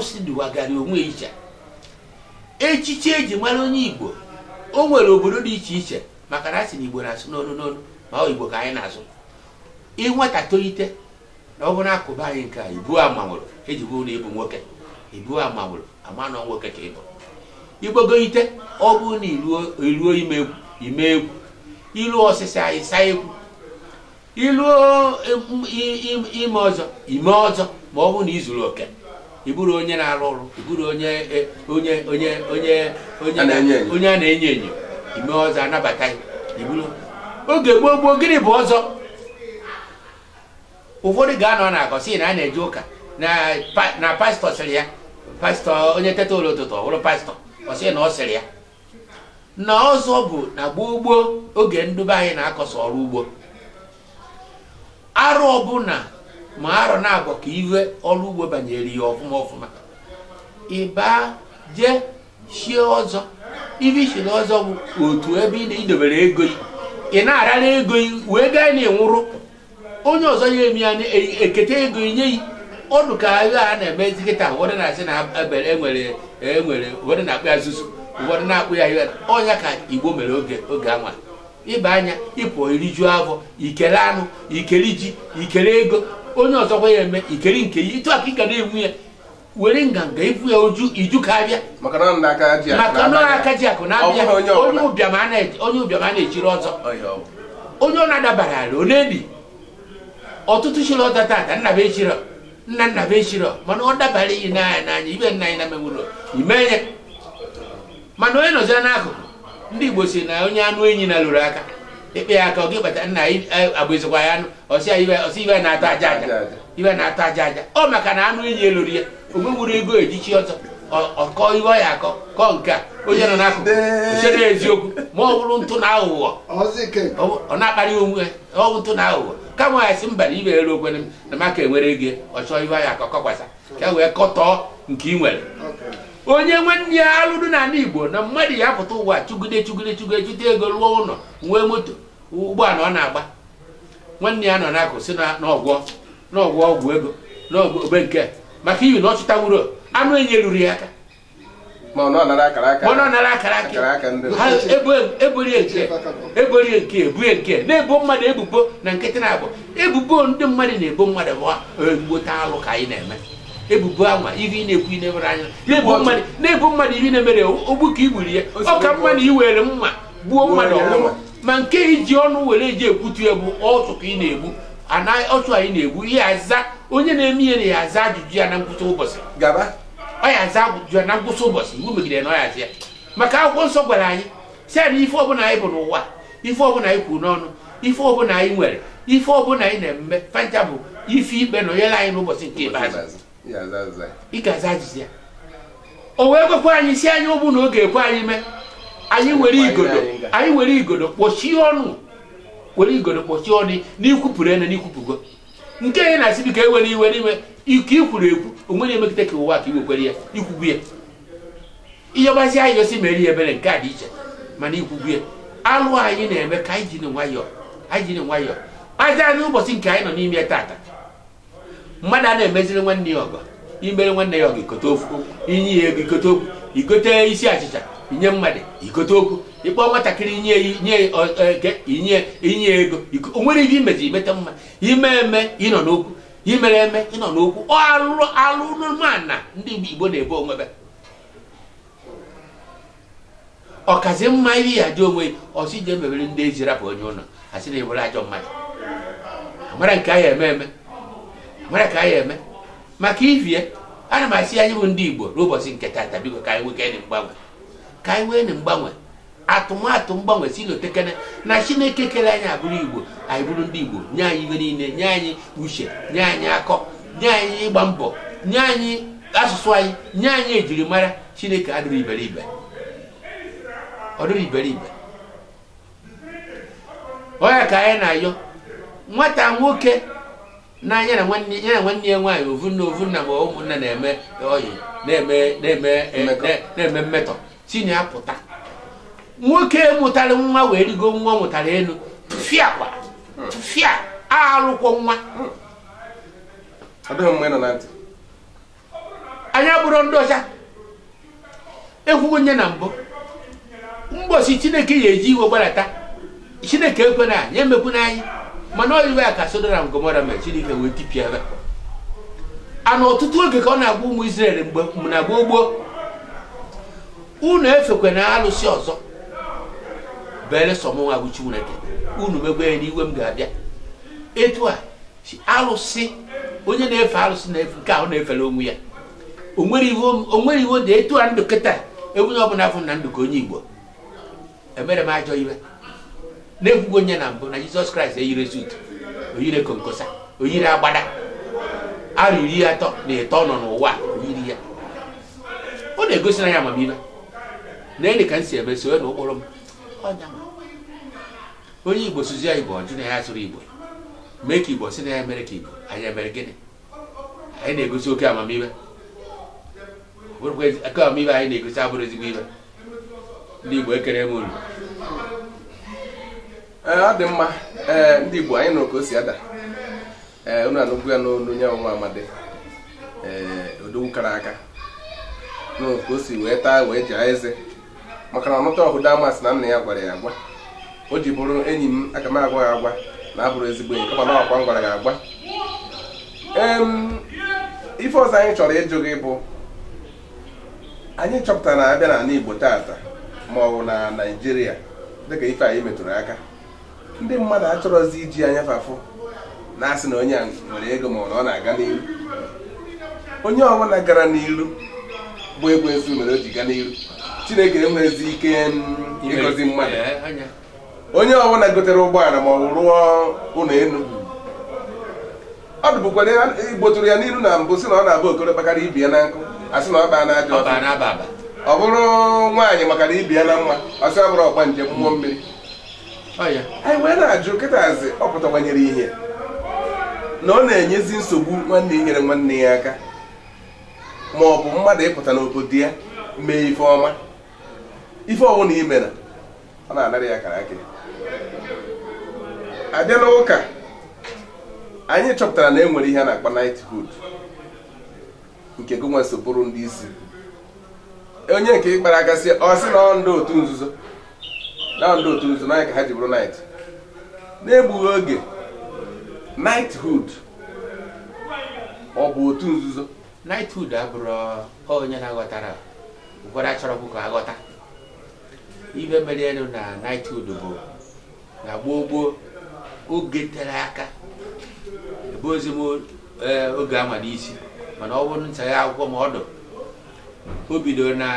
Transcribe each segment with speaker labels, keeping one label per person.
Speaker 1: awụsị dụwagara onwe iche echichi eji mara onye igbo o nwere obodo dị iche iche maka na asị na igbo na-asụ n'onu n'onu ma ọ igbo ka anyị na-azụ ịnweta tolite na ọ bụrụ akụba anyị nke a ibu amanwụrụ eji bụrụ na ịbụ nwoke ibu amanwụrụ ama na nwoke ka ịbụ igbogoite ọ bụrụ na iruo ime egwu iruo ọsịsa anyị saa egwu iruo ime ọzọ ime ọzọ ma ọ bụrụ na izuru oke ịbụrụ onye na-arụ ọrụ ịbụrụ onye e, onye onye onye onye a na-enyo enyo ime ọzọ anabata oge gboo gboo gịnị bụ ọzọ ụfọdụ ga-anọ na akọ na a na-eje ụka na pastọ sịrị ya pastọ onye teta ụlọ ụtụtụ ọ bụrụ pastọ ọ na ọ sịrị ya na ọzọ bụ na gboo gboo oge ndụbe anyị na-akọsọ ọrụ ugbo arụ ọbụla ma arọ na-agọ ka iwe ọrụ ugbo banyere ya ọfụma ọfụma ịba jee shie ọzọ ibe ishiri ọzọ bụ otu ebe ị na-idobere ego ị na-arara ego wee gaa na-enwụrụ onye ọzọ ya emi ya eketa ego nye yi ọnụ ka agha a na-eme nkịta ụfọdụ na-asị na enwere e enwere ụfọdụ na-akpụ ya zụzụ ụfọdụ na-akpụ ya ihe ọnya ka igbo mere oge oge anwa ịba anya ịpụ iriju afọ ikele anụ ikele ji ikele ego onye ọzọ ọzọkwa ya eme ikeri nke ya etu aka ị ga na-egbu ya were nganga ibu ya oju iju ka abịa maka na aka ji akụ na-abịa onye ụbịam a na-ejiri ọzọ onye ọ na-adabara ala ọ na ọtụtụ chiri ọzọ tata nnaba echiro nna nnaba echiro mana ọ dabara iyi na n'anya ibe nna anyị na mewụrụ ime ya mana onye nọzi n'akụkụ ndị Igbo si na onye anụ enyi na lụrụ aka ịkpa e, ya aka ọ gị bata nna agbụzikwa ya anụ ọsị ibe na atọ aja aja ibe na atọ aja aja ọ maka na anụ enyi elori ya onwe nwere ego ejichi ọzọ ọkọ iwe ya akọ kọ nke a onye nọ n'akụkụ chere eziokwu ma ọ bụrụ ntụ na aghụghọ ọ na-akparị onwe ọwụ ntụ na aghụghọ kama ya sị mba na ibe elu okwene m na maka enwere ego ọ chọọ iwe ya akọ kọkwasa ka e wee kọtọọ nke ị nwere onye nwanne ya alụrụ n'ala igbo na mmadụ ya apụta ụwa chụgide chụgide chụgide chụta ego lụọ ụlọ nwee moto ụgbọala ọ na-agba nwanne ya nọ n'akụ si n'ọgwọ n'ọgwọ ọgwụ ego n'ogbe nke maka iyi na ọ anụ enye ruru ya aka ma ọ nara akara aka eborie nke ebue nke na-ebo mmadụ ebubo na nkịtị na-abụ ebubo ndị mmadụ na-ebo mmadụ bụ mgbota alụ ka anyị na-eme ebubo anwa ihe ị na-ekwu ị na anya na-ebu mmadụ ihe na-emere ogbu ka i ya ọ ka mma na i were mma gbuo mmadụ ọgwụgwọ ma nke iji ọnụ were eji ekwutu ya bụ ọtụ ka ị na-egbu ọtụ anyị na-egbu ihe aza onye na-eme ihe na ya aza ajụjụ ya na ngwụcha ụbọchị ọ ya aza ajụjụ ya na ngwụcha ụbọchị na ọ ya maka akwụkwọ nsọ gwara anyị si anyị ife ọbụla anyị bụ n'ụwa ife ọbụla anyị kwuru n'ọnụ ife ọbụla anyị nwere ife ọbụla anyị na-eme fanta bụ ife ikpe na anyị n'ụbọchị nke ị ga-aza ajụjụ ya o wee gwekwa anyị si anyị ụbụ na oge ekwe anyị mee anyị were igodo anyị were igodo kpọchie ọnụ were igodo kpọchie ọnụ n'ikwupụrụ ene n'ikwupụgo nke anyị na-asị biko ewere iwe n'ime ike ikwuru ekwu onwe na-emegide ka ụwa ka iwekwere ya ikwugbu ya ihe gbazi anyị gosi mere ya ebere nke a dị iche mana ikwugbu ya alụ anyị na-eme ka anyị jiri nwayọọ anyị jiri nwayọọ aja n'ụbọchị nke anyị nọ n'ime ya taata mmadụ a na-emeziri nwanne ya ọgọ imere nwanne ya ọgọ ikote okwu inye ya ego ikote okwu ikote isi achịcha inye mmadụ ikote okwu ịkpọ nwatakịrị nye nye inye ego onwere ihe imezi imeta mma ime eme ịnọ n'okwu imere eme ịnọ n'okwu alụmana ndị Igbo na-ebe onwebe ọkazi mma ihe ya dị onwe ọsị e ji emebere ndị ezi rapụ onye ụlọ asị na ebere ajọ mmadụ amara nke ahụ eme eme mere ka anyị eme maka ivie ana m asị anyị bụ ndị igbo n'ụbọchị nke tata biko ka anyị nwee kene mgbanwe ka anyị nwee mgbanwe atụmatụ mgbanwe si n'otekene na chineke kere anyị abụrụ igbo anyị bụrụ ndị igbo nye anyị ibe niile nye anyị uche nye anyị akọ nye anyị ịgba mbọ nye anyị asụsụ anyị nye anyị ejirimara chineke adịrị iberibe ọ iberibe onye ka anyị na-ayọ nwata nwoke na na nwanne ya nwaanyị ovunna ovunna ma ụmụnna na-eme oyi e, na-eme mmetọ tinye apụta nwoke mụtara nwa wee rigo nwa mụtara elu fịa kwa fịa arụkwọ nwa anya bụrụ ndị ọcha ekwugo nye na mbụ mgbọsi chineke ya eji iwe gbalata chineke ekwena ya emekwuna n'anya mana oyiwe ya ka sodora ngomora mere chineke wee tipịa ebe a na ọtụtụ oge ka ọ na-agwa ụmụ isrel mgbe na gboo gboo unu efekwe na alụsị ọzọ belesọ mụnwa bụ chineke unu megbe ya n'iwe m ga-abịa etu a alụsị onye na-efe alụsị na-efe nke ahụ na-efere onwe ya onwere iwu dị etu a ndụ kịta ebunye ọbụla afọ na ndụ ka onye igbo emere m ajọ iwe na-ekwugo onye na mbụ na jizọs kraịst eyiri sut oyiri konkosa oyiri agbada arụ iri atọ na ịtọ nọ n'ụwa oyiri ya ọ na-egosi na ya amamihe na ele ka m si eme na ụkpụrụ m onye igbo sozi ya igbo ọjụ na ya sụrụ igbo mee ka igbo si na ya mere ka igbo anya mere gịnị anyị na-egosi oke amamihe amamihe anyị na-egosi abụrụ ezigbo ihe ndị igbo ekere m uru
Speaker 2: Eh, ọ dị mma ee eh, ndị Igbo anyị nụrụ ka o si ada ee eh, unu ya n'olu onye ọnwa amadi ee odogwu kara aka nụrụ ka o si wee taa wee jaa eze maka na ọnụta ọhụda amasị na nna ya gwara ya agwa o ji bụrụ enyi m aka m agwa ya agwa na abụrụ ezigbo enyi kama na ọkwa m gwara ya agwa ife ọzọ anyị chọrọ ịjụ gị bụ anyị chọpụtara na abịa na Igbo tata ma na Naịjirịa dịka ife anyị metụrụ aka ndị mmadụ achọrọzi iji anya fafụ na-asị na onye a nwere ego ma ọ na-aga n'iru onye ọbụla gara n'ilu bụ egwu ezu mere o ji gaa n'ilu chineke enwezi ike ịgọzi mmadụ onye ọbụla gotere ụgbọala ma ọ rụọ ụlọ elu ọ dụbụkwara e gbotụrụ ya n'iru na mbụ si na ọ na-abụ okoro kpakara ibi ya na nkụ asị na ọ baa na ajọ ọ bụrụ nwaanyị makara ibi ya na mma ọsị ọ bụrụ ọgba njem mmụọ mmiri anyị wee na-ajụ kịtazi ọ ihe na ọ na-enyezi nsogbu nwanne nyere nwanne ya aka ma ọ bụ mmadụ ịpụta n'obodo ya mee ife ọma ife ọbụla ị ọ na-anara ya akara akịrị abịa n'ụka anyị chọpụtara na e nwere ihe a na-akpa knighthood nke gụnwa so bụrụ ndị isi onye nke ịkpara aka si ọ sị na ọ ndị otu nzuzo na ndị otu nzu naanị ka ha ji bụrụ night na-egbughị oge
Speaker 1: knighthood ọ bụ otu nzuzo knighthood abụrụ onye na-aghọtara ụfọdụ achọrọbụ ka aghọta ibe mere elu na knighthood bụ na gboo gboo oge tere aka ebe ozi m eh, oge ama n'isi mana ọ bụrụ nchagha akwụkwọ m ọdụ o bidoro na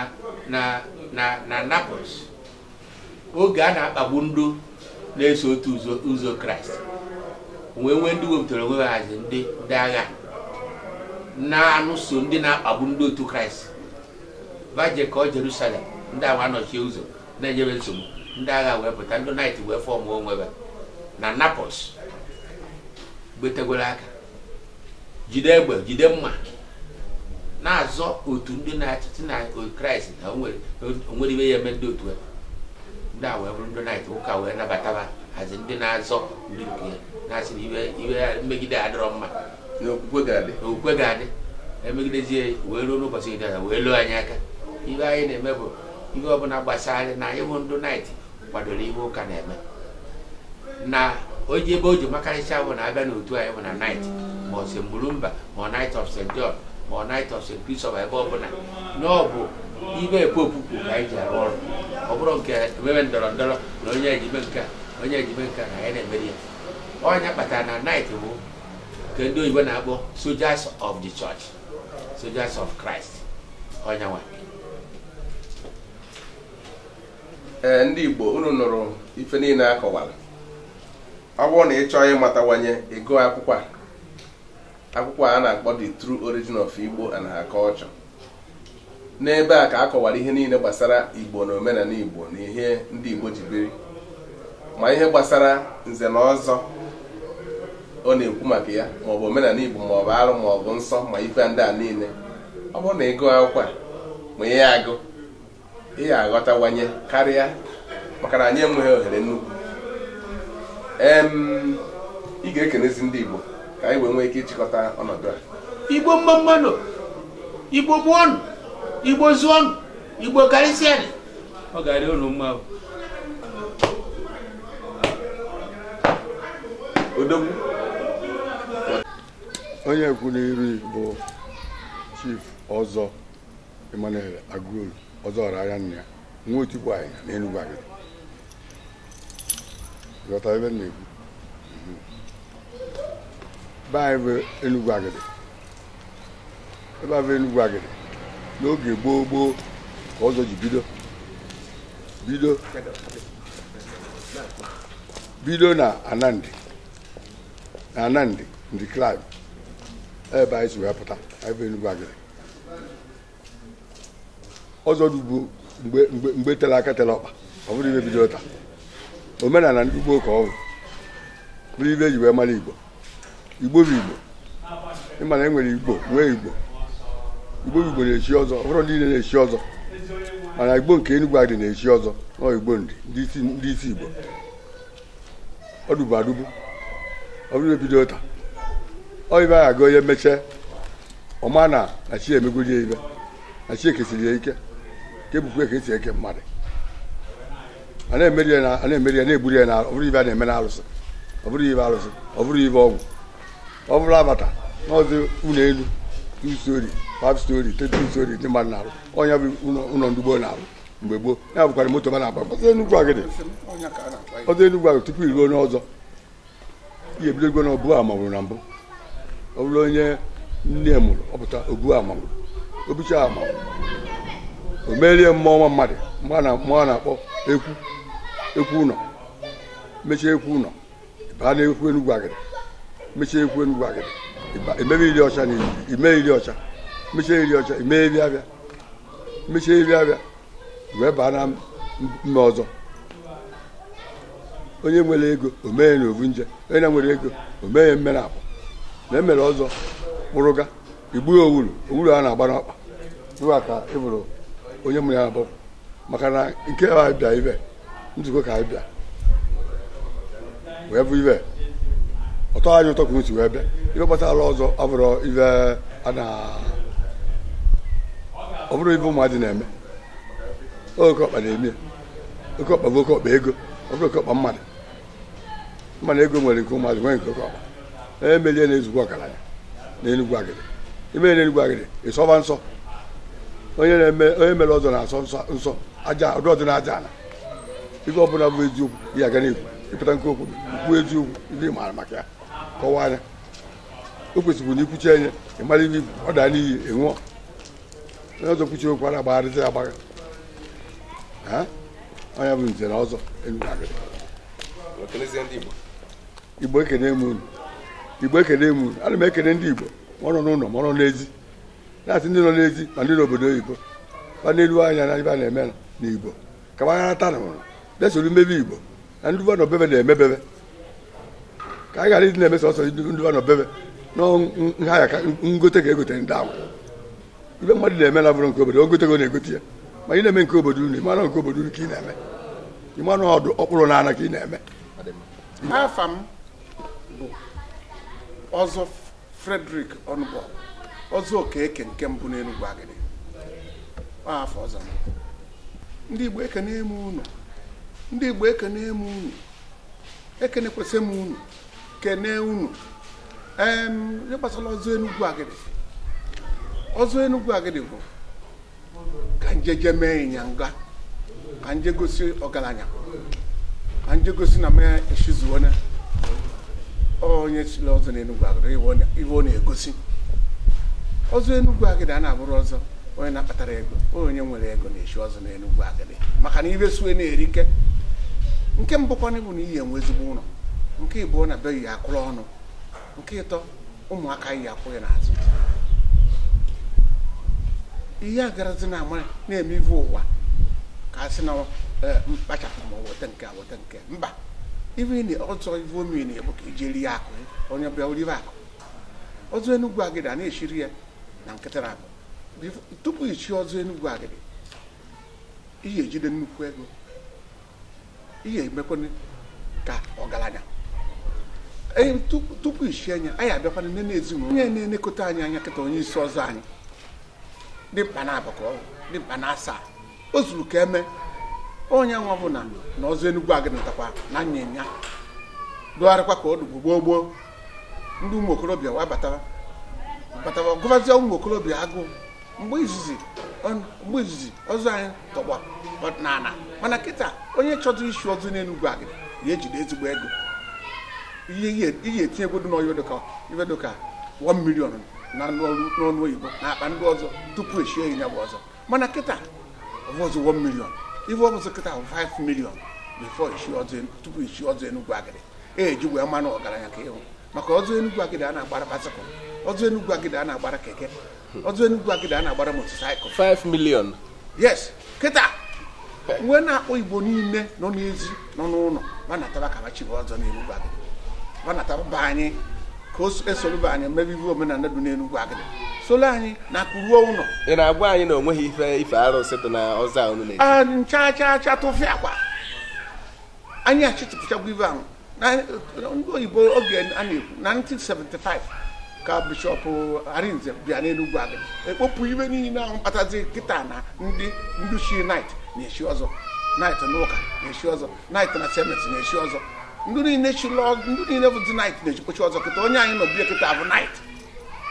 Speaker 1: na na na Naples oge a na-akpagbu ndụ na-eso otu ụzọ kraịst wee nwee ndị wepụtara onwe ha hazi ndị ndị agha na-anụso ndị na-akpagbu ndị otu kraịst baje kọọ jerusalem ndị agha nọchie ụzọ na-enyebe nsogbu ndị agha wee pụta ndị naịt wee fọm onwebe na napos gbetegwere aka jide egbe jide mma na-azọ otu ndị na-achịchị na kraịst na onwere ibe ya eme ndị otu ya ndị a wee bụrụ ndị na ụka wee nabata ha hazi ndị na-azọ ndị nke na-asị na iwe mmegide adịrọ mma na okwukwe ga-adị emegidezie wee ruo n'ụbọchị dị wee loo anyị aka ihe anyị na-eme bụ ihe ọbụla gbasara anyị na ịhụ ndụ naịt kwadoro ihe ụka na-eme na oji ebe o ji makarịcha bụ na abịa n'otu anyị bụ na naịt ma ọ si mgburumba ma naịt of st john ma naịt of st christopher ebe ọbụla na ọ bụ ibe epopu ka anyị ji arụ ọrụ ọ bụrụ nke nwere ndọrọ ndọrọ na onye ejime nke onye ejime nke na ya na-emeri ya ọnya kpatara na night bụ nke ndị oyibo na-akpọ sojas of the church sojas of Christ ọnya nwa ee ndị Igbo
Speaker 2: unu nụrụ ife niile akọwara ọ bụrụ na ị chọọ ịmatawanye ego akwụkwọ a akwụkwọ a na-akpọ the true origin of Igbo and her culture n'ebe a ka a kọwara ihe niile gbasara igbo na omenala igbo na ihe ndị igbo ji biri ma ihe gbasara nze na ọzọ ọ na-ekwu maka ya maọbụ omenala igbo maọbụ arụ maọbụ nsọ ma ife ndị a niile ọ bụrụ na ịgụ akwụkwọ ma ihe agụ ihe aghọtawanye karịa maka na anyị enweghị ohere nnukwu ị ga-ekenezi ndị igbo
Speaker 1: ka anyị wee nwee ike ịchịkọta ọnọdụ a igbo mma igbo gbuo ọnụ igbo zụọnụ igbo karịsịa ọ ga-arị unu mma
Speaker 3: onye kwuru iri bụ chif ọzọ Emmanuel Agụolu ọzọ ọra ahịa nna ya nwa otukwu anyị na Enugu Agidi ebe m na-ekwu be anyị bụ Enugu Agidi ebe a bụ Enugu Agidi n'oge gboo gboo ka ọzọ ji bido bido bido na anandị na anandị ndị ebe anyị si wee pụta ebe enugwu agịrị ọzọ dị mgbe mgbe tere aka tere ọkpa ọ bụrụ ibe bido taa omenala ndị ugbo ka ọ bụrụ ibe eji wee mara igbo igbo bụ igbo ịma na e nwere igbo nwee igbo igbo igbo na-echi ọzọ ọhụrụ niile na-echi ọzọ mana igbo nke enugwu adị na-echi ọzọ nọ igbo ndị ndị isi igbo ọ ọdụbụ adụbụ ọ bụrụ ebido taa oyibe a ga onye mechie ọma na na chi emegodi ya ibe na chi ekesiri ya ike ka ebukwa ka esi eke mmadụ a na-emeri ya na-egburi ya na ọ bụrụ ibe a na-eme na alụsị ọ bụrụ ibe alụsị ọ bụrụ ibe ọgwụ ọ bụrụ abata n'ọzọ ụlọ elu n'isi usori five story three story ndị mmadụ na-arụ ọnya bụ ụlọ ndị gboo na-arụ mgbe gboo ya bụkwara moto ma na-agba Enugwu agịdị ọzọ Enugwu agịdị tupu iruo n'ọzọ ihe ebido igwe na obu ama mụrụ na mbụ ọ bụrụ onye nne mụrụ ọpụta obu ama mụrụ obicha ama o merie mmụọ nwa mmadụ mmụọ a na-akpọ ekwu ekwu ụlọ mechie ekwu ụlọ baa na ekwu Enugwu agịdị mechie ekwu Enugwu agịdị ime iri ọcha mechaa iri ọcha mee abịa mechaa abịa wee baa na mba ọzọ onye nwere ego omee na ovu nje onye na nwere ego mee ya mmere akwa na emere ọzọ kpụrụga igbu ya owuru owuru a na-agba n'ọkpa tụwa ka ị onye mụrụ ya abụọ maka na nke a bịa ibe nzukọ ka anyị wee bụ ibe ọtọ anyị ụtọ ka si wee bịa ibe ọzọ ọ ibe a na ọ bụrụ ibe ụmụadị na-eme oke na-eme oke bụ oke ego ọ bụrụ mmadụ ego nwere nke ụmụadị nwere nke oke emelie na eme ọgaranya na enugwu agịrị imere e na enugwu agịrị ịsọba nsọ onye na-eme onye mere ọzọ na-asọ nsọ aja ọdụ ọdụ na aja ala ihe ọ bụ eziokwu ya aga n'ekwu ịpụta nke okwu kwuo eziokwu ndị maara maka ya kọwaa anya o kwesịrị na ikwuchi enye ị mara ihe ọ daa n'iyi ị nwụọ ọzọ kwuchi okwu a na-agbagharịta ya agbagha onye bụ nze na ọzọ igbo ekene m unu igbo ekene m unu ana m ekene ndị igbo ma ọ nọ n'ụlọ ma ọ nọ n'ezi na-asị ndị nọ n'ezi ma ndị n'obodo oyibo ma n'elu anya na ibe na-eme na igbo ka gbagharata na ụrụ bịasoro mmebi igbo na ndị nọ bebe na-emebebe ka anyị ghara ịdị na-eme sọsọ ndị nọ bebe na nha ya ka ngote ga-egotere ndị agwa ibe mmadụ na-eme na bụrụ nke obodo ogote na-egote ya ma ị na-eme nke obodo unu ịmara nke obodo unu ka ị na-eme ịmara ọdụ ọkpụrụ na ana ka ị na-eme
Speaker 4: afa m bụ ọzọ Frederick Ọnụbọ ọzọ okeke nke mbụ n'Enugwu Agidi afọ ọzọ ndị Igbo ekene eme unu ndị Igbo ekene eme unu ekene kwesị m unu kene unu ee ihe gbasara ọzọ Enugwu Agidi ọzọ Enugu Agidi bụ ka je mee ịnyanga ka nje gosi ọgaranya ka nje gosi na mee eshizuona onye chiri ọzọ na Enugu Agidi iwe ọ na-egosi ọzọ Enugu agịdị a na-abụrụ ọzọ onye na-akpatara ego onye nwere ego na-eshi ọzọ na Enugu agịdị maka na ibe sue na-erike nke mbụkwana bụ na iyi enwe ezigbo ụlọ nke ịbụọ na be yi akụrụ ọnụ nke ịtọ ụmụaka yi akwụghị n'azụ ihe agarazi na ama na-eme ive ụwa ka a sị na e, mkpachapụ ma weta nke weta nke mba ive ọzọ ive omi na-egbu ka ijeri e ya akụ onye bịa oribe akụ ọzọ enugwu agịdị a na-eshiri ya na nkịtị na-abụ tupu ichi ọzọ enugwu agịdị ihe ejide nnukwu ego ihe emekwana ka ọgaranya e, tupu ichi anya anyị abịakwana nne na ezinụlọ onye na-enekọta anyị anya kịta onye isi ọzọ anyị dị mkpa na abakọ dị mkpa na o zuru ka eme onye nwa bụla na ọzọ enugwu agịnatakwa na nyanya dụgharịkwa ka ọdụ gboo gboo ndị ụmụ okorobịa wa batara gụbazie ụmụ okorobịa agụụ mgbe izizi mgbe izizi ọzọ anyị tọgba ọdịnala mana kịta onye chọdụ isi ọzọ n'enugwu agịna ya ejide ezigbo ego ihe etinyegwodu n'ọya ka 1 million na n'ọnụ oyibo na akpa ndị ọzọ tupu echie ya bụ ọzọ mana kịta ọbụzụ 1 million ife ọbụzụ kịta bụ 5 million before e tupu ichie e ọzọ enugwu agịrị eji wee mmanụ ọgaranya ka ịhụ maka ọzọ enugwu agịrị a na-agbara baịsịkụl ọzọ enugwu agịrị a na-agbara keke ọzọ enugwu agịrị a na-agbara motosaịkụl
Speaker 2: 5 million
Speaker 4: yes kịta nwe na-akpọ igbo niile nọ n'ezi nọ n'ụlọ banataba ka machibe ọzọ enugwu agịrị banataba anyị ka esoluba anyị mebibi omenala dị n'enugwu agịdị solu anyị na-akụruo ụlọ ị na-agwa
Speaker 2: anyị na onweghị ife ife arụsị dị na ọza unu na a ncha
Speaker 4: cha cha tụfịa kwa anyị achịtụpụchagwa ibe ahụ ndị oyibo oge a na-ekwu na 1975 ka bishọp arinze bịa n'enugwu agịdị ekpopụ ibe niile ahụ kpatazi kịta na ndị nduchi nait na-echi ọzọ nait n'ụka na-echi ọzọ nait na semet na-echi ọzọ ndị niile bụ dị nait na-ejikwachi ọzọ kịta onye anyị nọ bie kịta bụ nait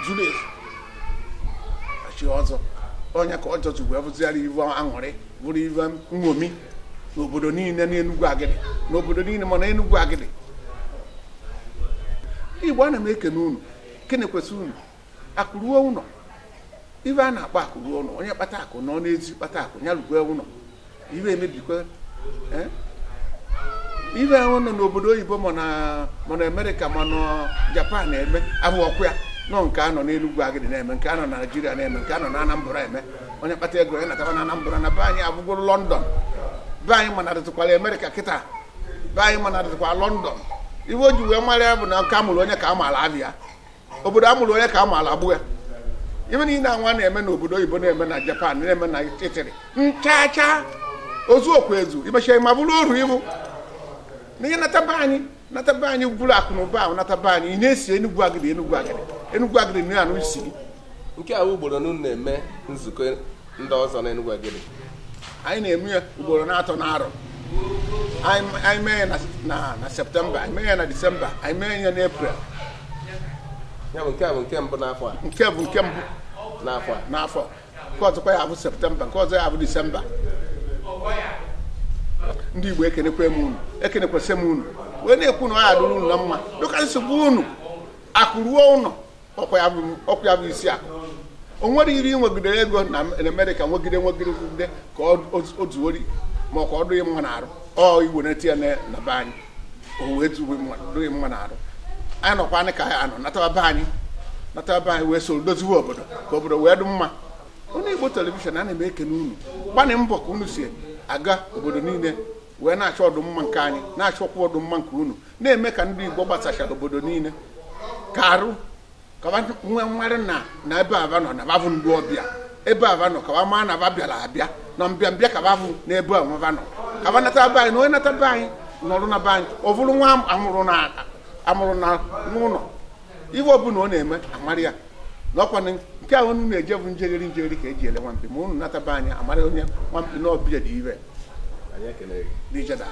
Speaker 4: zuru ezu chi ọzọ onye ka ọjọ ji wee bụzigharị iwe aṅụrị bụrụ iwe nṅomi n'obodo niile n'enugwu agịdị n'obodo niile mana enugwu agịdị igbo ana m ekene unu kene kwesị unu akụruo ụnọ, ibe a na-akpọ akụruo ụnọ onye kpata akụ nọ n'ezi kpata akụ ya rugwe ụlọ ibe emebikwa eh? ibe ahụ nọ n'obodo oyibo na mana amerịka mana japan na-eme abụ ọkụ ya nọ nke anọ n'enugwu agịdị na-eme nke anọ na naijiria na-eme nke anọ na anambra eme onye kpata ego ya nataba na anambra na be anyị abụgoro lọndọn be anyị mana adịtụkwala amerika kịta be anyị mana adịtụkwa lọndọn iwe o ji wee mara ya bụ na nke amụrụ onye ka a maara abịa obodo amụrụ onye ka a maara agbụ ya ibe na anwa na-eme n'obodo oyibo na-eme na japan na-eme na itiri nchacha ozu okwu ezu imechara ma bụrụ oru ibu na ihe nata be anyị nata be anyị gwuru akụ na ụba nata be anyị ị na-esi enugwu agịrị
Speaker 2: enugwu agịrị enugwu agịrị na nke a ugboro unu na-eme nzukọ ndị ọzọ na enugwu agịrị anyị na-eme ya ugboro na-atọ n'arọ
Speaker 4: anyị mee ya na septemba anyị mee ya na disemba anyị mee ya na eprel ya bụ nke a bụ nke mbụ n'afọ a nke bụ nke mbụ n'afọ n'afọ nke ọzọkwa ya bụ septemba nke ọzọ ya abụ disemba ndị Igbo ekenekwe m unu ekenekwesị m unu wee na-ekwu na ọ ya dụrụ unu na mma dịka nsogbu unu ruo ụlọ ọkwa ya bụ isi akụ o nwere iri nwegidere ego na Amerịka nwegide nwegide ka o zuori ma ọ ka ọ dụghị mma na-arụ ọ iwenete ya na be anyị o wee dụghị mma na-arụ anyị nọkwa anyị ka anyị anọ natawa be anyị natawa be anyị wee soro doziwe obodo ka obodo wee dị mma onye Igbo telivishọn a na-eme ekene unu gbanị mbọ ka unu si aga obodo niile wee na-achọ ọdụmma nke anyị na-achọkwa achọ ọdụmma nke unu na-eme ka ndị igbo gbasachara obodo niile ka arụ ka na na ebe aba nọ na babụ ndụ ọbịa ebe aba nọ ka maa na aba bịara abịa na mbịa ka babụ na ebe amaba nọ ka ba nata be anyị na onye nata be anyị nọrụ na be ọ nwa amụrụ na n'ụlọ ọbụla ọ na-eme amarị ya n'ọkwa nke ahụ unu na-eje bụ njegheri njegheri ka e ji ele nwampi ma unu anyị amarị onye na ọbịa dị ire Anyị ekele gị.